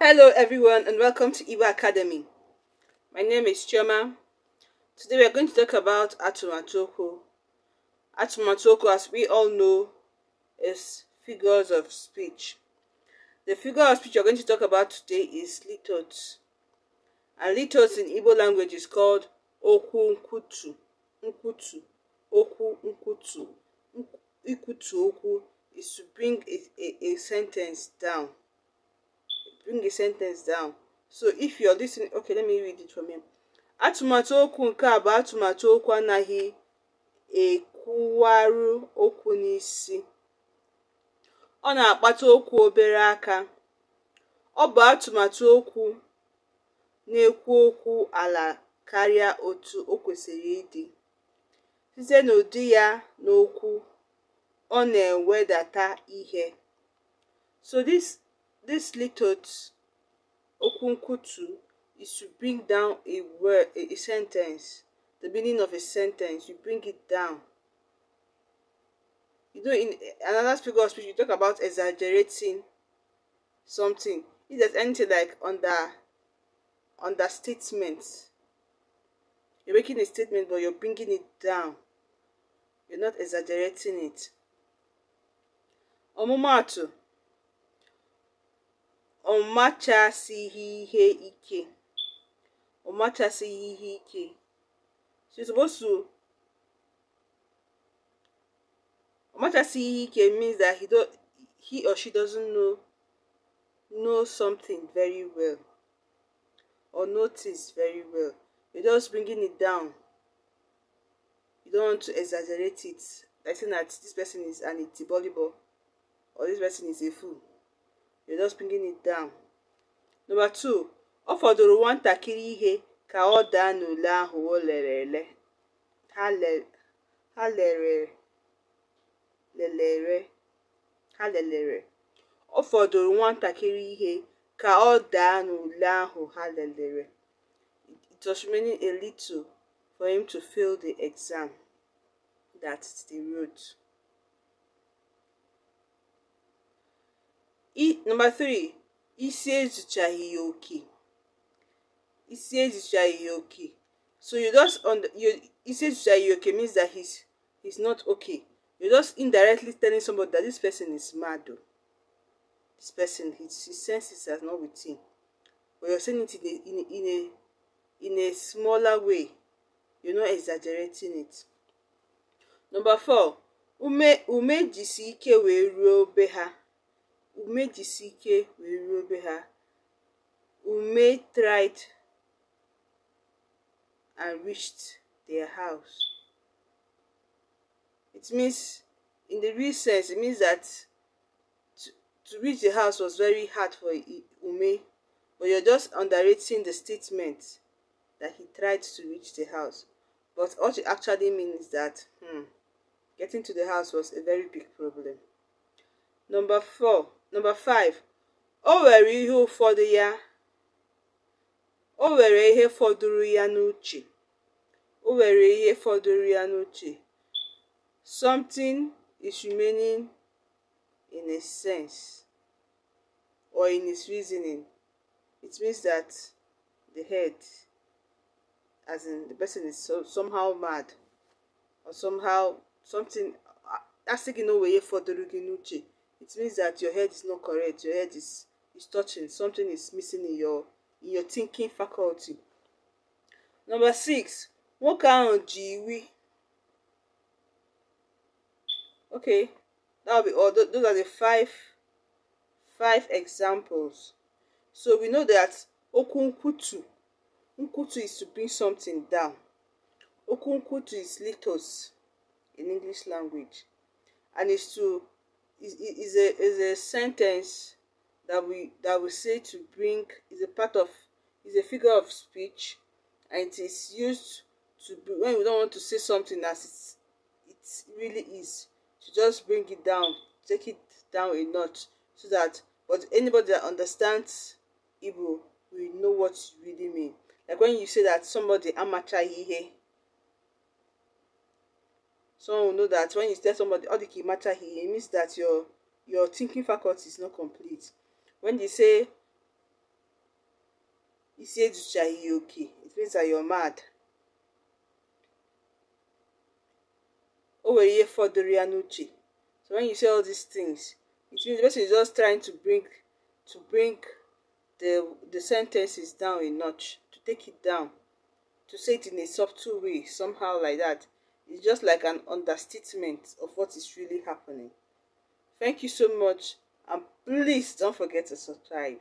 Hello everyone and welcome to Iwa Academy. My name is Chioma. Today we are going to talk about Atumatoko. Atumatoko, as we all know, is figures of speech. The figure of speech we are going to talk about today is litots. And litots in Igbo language is called Oku Nkutu. Nkutu. Oku Nkutu. Ikutu Oku is to bring a, a, a sentence down. bring a sentence down so if you're listening okay let me read it from him atụmatụ okwu nke a bụ atụmatụ okwu anaghị ekwuwarụ okwu n'isi ọ na-akpata okwu obere aka ọ bụ atụmatụ okwu na-ekwu okwu ala karịa otu o kwesịrị ịdị site n'ụdị ya n'okwu ọ na-ewedata ihe so this This little okunkutu is to bring down a word, a, a sentence, the meaning of a sentence. You bring it down. You know, in another figure of speech, you talk about exaggerating something. It's there's anything like under understatement, you're making a statement, but you're bringing it down. You're not exaggerating it. ọmụmaatụ ọ machasighị ihe ike ọ machasighị ihe ike she's supposed to ọ ihe ike means that he, do, he or she doesn't know know something very well or notice very well you're just bringing it down you don't want to exaggerate it like saying that this person is an itty or this person is a fool you're just bringing it down number two ọ fọdụrụ ihe ka ọ daa n'ule ahụ o ha lelere ha lelere ọ fọdụrụ ihe ka ọ daa n'ule ahụ ha lelere it was remaining a little for him to fail the exam that's the route number three isi ezuchaghị ya oke isi ezuchaghị ya oke so you just on the, you isi ezuchaghị ya oke means that he's he's not okay you are just indirectly telling somebody that this person is mad o this person his his senses are not with him but you're saying it in a in a in a in a smaller way you're not exaggerating it number four ume ume jisi ike wee ruo be ume jisi ike wee ruo be ha ume tried and reached their house it means in the real sense it means that to, to reach the house was very hard for ume but you're just underrating the statement that he tried to reach the house but what it actually means is that hmm, getting to the house was a very big problem number four Number five, o were ihe ụfọdụ ya o were ihe fọdụrụ ya n'uche o were ihe fọdụrụ ya n'uche something is remaining in a sense or in his reasoning it means that the head as in the person is so, somehow mad or somehow something asị gị na for the ihe fọdụrụ gị n'uche it means that your head is not correct your head is is touching something is missing in your in your thinking faculty number six nwoke ahụ ji okay that will be all those are the five five examples so we know that okwu nkwutu nkwutu is to bring something down okwu nkwutu is litos in english language and it's to is, is a is a sentence that we that we say to bring is a part of is a figure of speech and it is used to be when we don't want to say something as it's it really is to just bring it down take it down a notch so that but anybody that understands Igbo will know what you really mean. Like when you say that somebody amateur here Someone will know that when you tell somebody all the kimata he, it means that your your thinking faculty is not complete. When they say isieduchahiyoki, it means that you're mad. O nwere ihe fọdụrụ So when you say all these things, it means the person is just trying to bring to bring the the sentences down a notch, to take it down, to say it in a subtle way, somehow like that. is just like an understatement of what is really happening. Thank you so much and please don't forget to subscribe.